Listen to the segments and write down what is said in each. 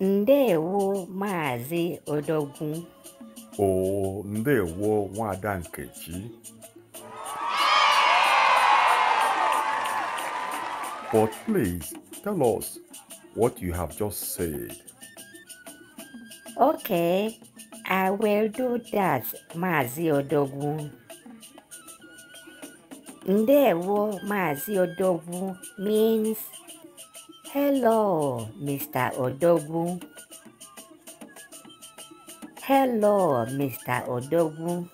ndewo maazị odogwu o ndewo nwada nkechi but please tell us what you have just said okay i will do that maazị odogwu ndewo maazị odogwu means Hello, Mr. Odogwu. Hello, Mr. Odogwu.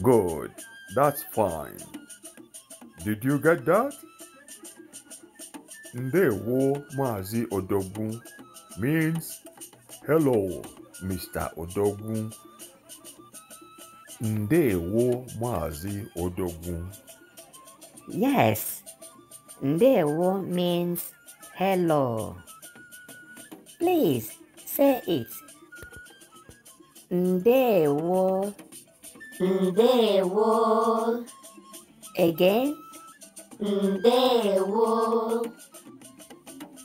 Good. That's fine. Did you get that? Ndewo Mazi Odogun means hello, Mr. Odogun. Ndewo Mazi Odogun. Yes, Mm-hmm. wo" means hello. Please say it. Ndewo. Ndewo. Again. Ndewo.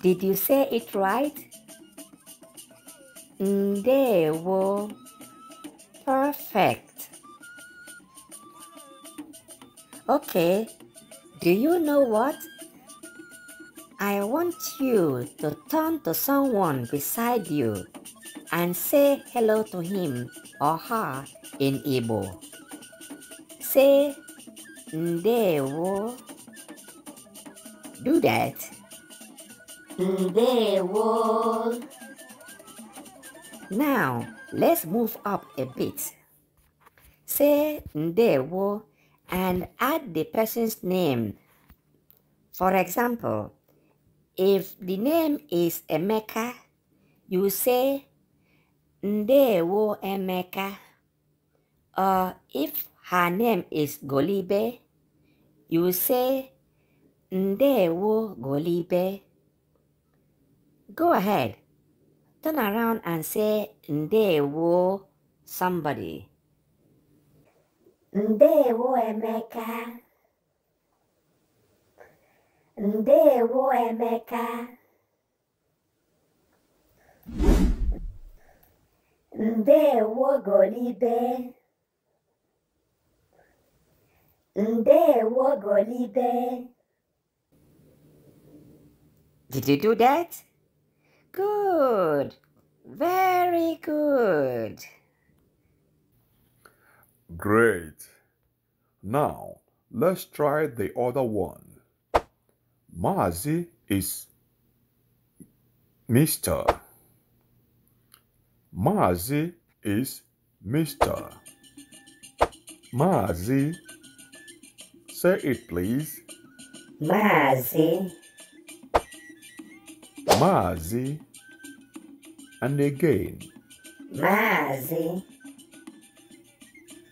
Did you say it right? Ndewo. Perfect. Okay. Do you know what? I want you to turn to someone beside you and say hello to him or her in Igbo. Say Ndewo. Do that. Ndewo. Now, let's move up a bit. Say Ndewo and add the person's name. For example, if the name is Emeka, you say Ndewo Emeka. Or if her name is Golibe, you say Ndewo Golibe. Go ahead, turn around and say Ndewo somebody. Ndewo Emeka ndewo Emeka ndewo Golibe ndewo Golibe Did you do that? Good. Very good. Great. Now, let's try the other one. Mazi is Mr. Mazi is Mr. Mazi. Say it please. Mazi. Mazi. And again. Mazi.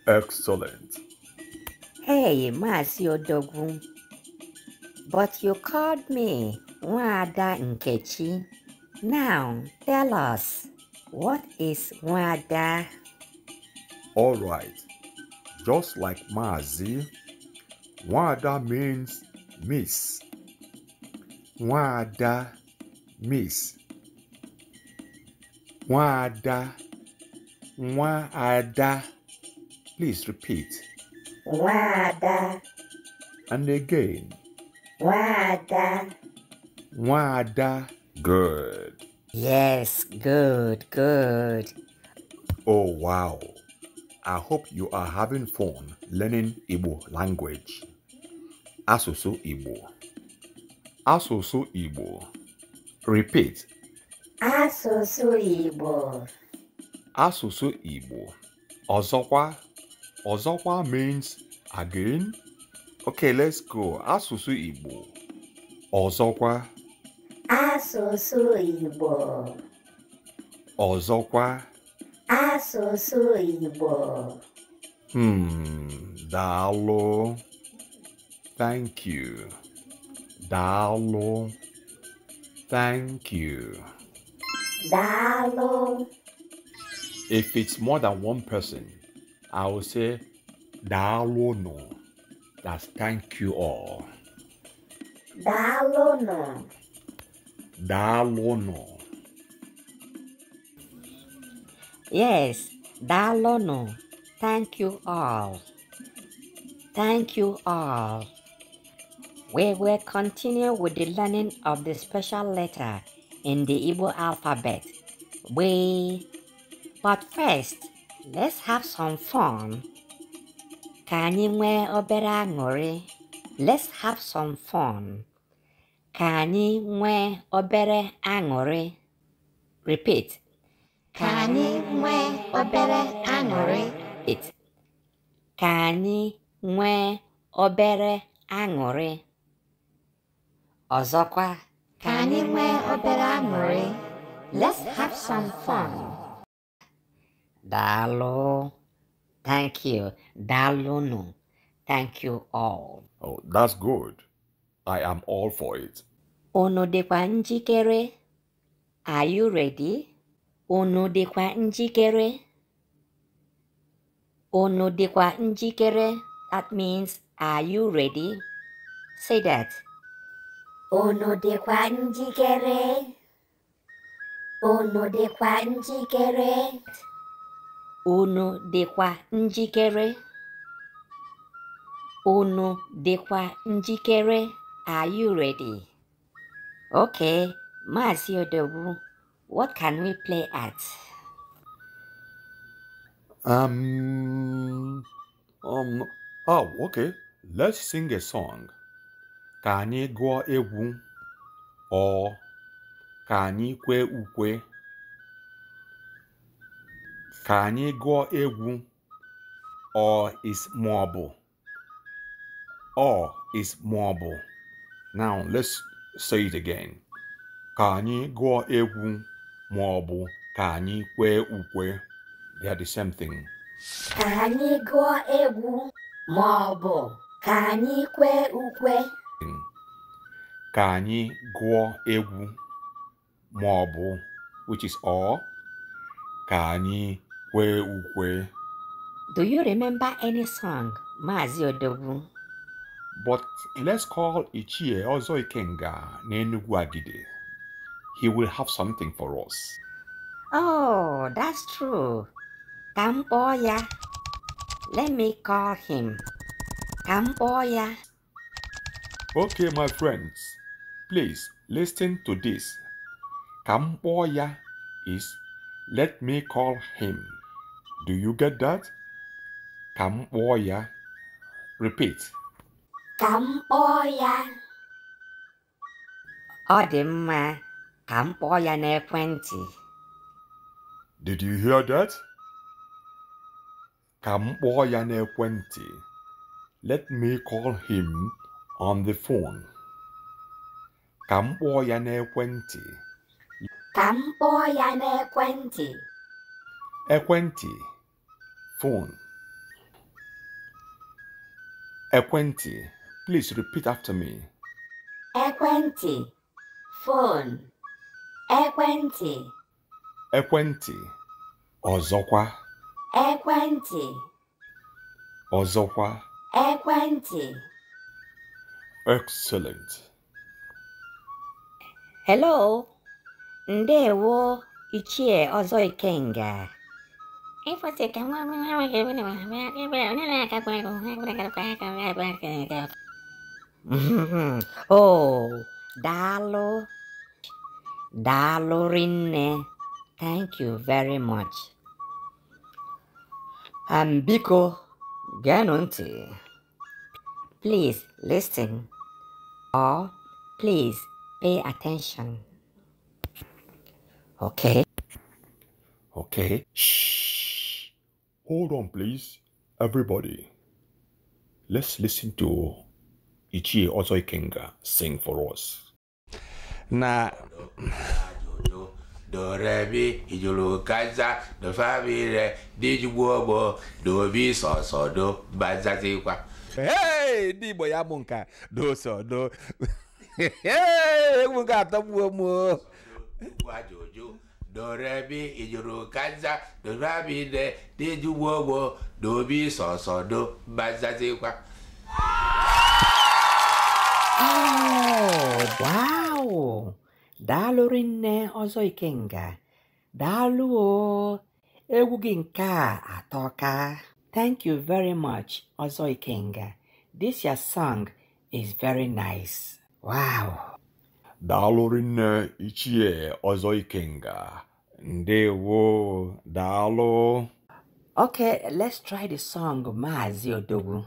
Excellent. Hey, Mazi Odogun. But you called me Wada Nkechi. Now tell us, what is Wada? All right. Just like Mazi, Wada means miss. Wada miss. Wada. Wada. Please repeat. Wada. And again. Wada. Wada. Good. Yes, good, good. Oh, wow. I hope you are having fun learning Igbo language. Asusu Igbo. Asusu Igbo. Repeat. Asusu Igbo. Asusu Igbo. Ọzọkwa. Ọzọkwa means again Okay, let's go. Asụsụ Igbo. Ọzọkwa. Asụsụ Igbo. Ọzọkwa. Asụsụ Igbo. Hmm, Dalo. Thank you. Dalo. Thank you. Dalo. If it's more than one person, I will say daalụ no. That's thank you all. Dalono. Dalono. Yes, Dalono. Thank you all. Thank you all. We will continue with the learning of the special letter in the Igbo alphabet. We, but first, let's have some fun. ka anyị nwee obere aṅụrị let's have some fun ka anyị nwee obere aṅụrị repeat ka anyị nwee obere aṅụrị ka anyị nwee obere aṅụrị ọzọkwa ka anyị nwee obere aṅụrị let's have some fun daalụ Thank you. Dalunu. Thank you all. Oh, that's good. I am all for it. Ono dịkwa njikere? Are you ready? Ono dịkwa kere. Ono dịkwa kere. That means, are you ready? Say that. Ono dịkwa kere. Ono dịkwa kere. unu dịkwa njikere unu dịkwa njikere are you ready okay maazị odogwu what can we play at um, um, oh, okay let's sing a song ka anyị gụọ egwu ọ ka anyị kwee ukwe ka anyị gụọ egwu ọ is maọbụ ọ is maọbụ now let's say it again ka anyị gụọ egwu maọbụ ka anyị kwee ukwe they are the same thing ka anyị gụọ egwu maọbụ ka anyị kwee ukwe ka anyị gụọ egwu maọbụ which is all ka anyị do you remember any song, Mazi But let's call Ichie Ozo Ikenga Nenugwagide. He will have something for us. Oh, that's true. Kamboya. Let me call him. Kamboya. Okay, my friends. Please listen to this. Kamboya is let me call him. Do you get that? Kam oya. Repeat. Kam oya. Ọ dị mma, ka Did you hear that? Ka m kpọọ Let me call him on the phone. Ka m kpọọ ya n'ekwentị. Ka m phone. ekwentị, please repeat after me. Ekwentị. phone. Ekwentị. Ekwentị. ọzọkwa. Ekwentị. Ọzọkwa. Ekwentị. Excellent. Hello. Ndewo, Ichie Ọzọ Ikenga. oh, Dalo. Dalo Thank you very much. And um, Biko Ganunti. Please listen or please pay attention. Okay? Okay. Shh. Hold on, please, everybody. Let's listen to Ichie Ozoi Kenga sing for us. Na. dorebi ijolokaza dofabire dijugbuogbo dobi sọsọdo bazazikwa ee ndị igbo ya bụ nka dosodo ee egwu ga-atọgbuo m o dorebi ijuru kaza dobabide dejugboogbo dobi sọsọ do bazazikwa oh, wow daalụ rinne ọzọ ikenga daalụ o egwu gị nke a atọka thank you very much ọzọ ikenga this your song is very nice wow daalụ rinne ichie ọzọ ikenga ndewo daalụ okay let's try the song maazi odogwu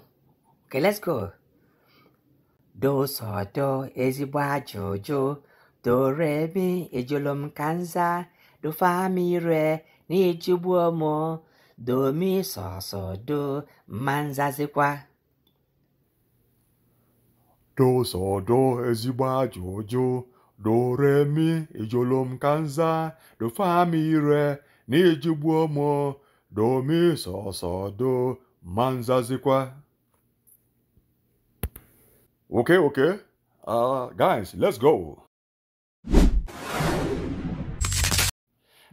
okay let's go dosodo ezigbo ajụjụ doremi ejolom kanza dofamire na ejigbuo m domi sosodo mma nzazikwa do so do ezigbo ajọ ụjụ mi ijolom kanza do fa mi re na ijigbuo m do do ma nzazikwa okay okay uh, guys let's go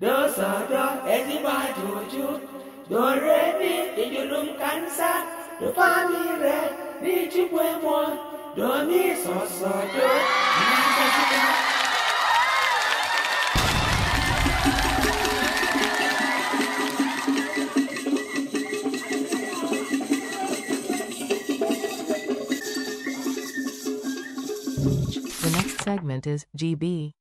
do so do ezigbo ajọ ụjụ mi ijolom kanza do fa mi re m The next segment is GB.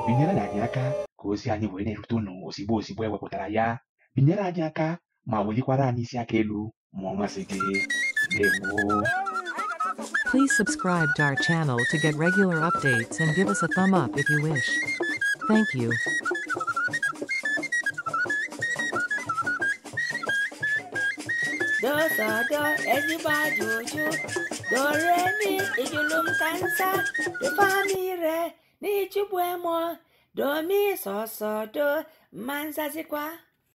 binyere anyị aka ka ozi anyị wee na-erute ụnụ ozigbo ozigbo ewepụtara ya binyere anyị aka ma welikwara anyị isi aka elu ma Please subscribe to our channel to get regular updates and give us a thumb up if you wish. Thank you. mi